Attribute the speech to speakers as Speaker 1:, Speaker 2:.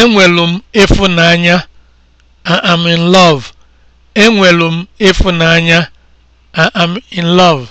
Speaker 1: Enwelu m ịfụnanya am in love. m ịfụnanya am in love.